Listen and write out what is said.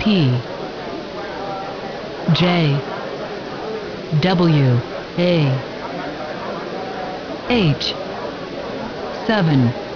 P J W A H 7